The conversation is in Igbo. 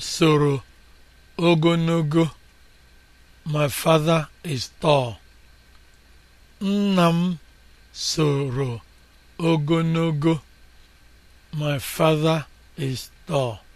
soro ogonogo, nna m soro ogologo my father is tall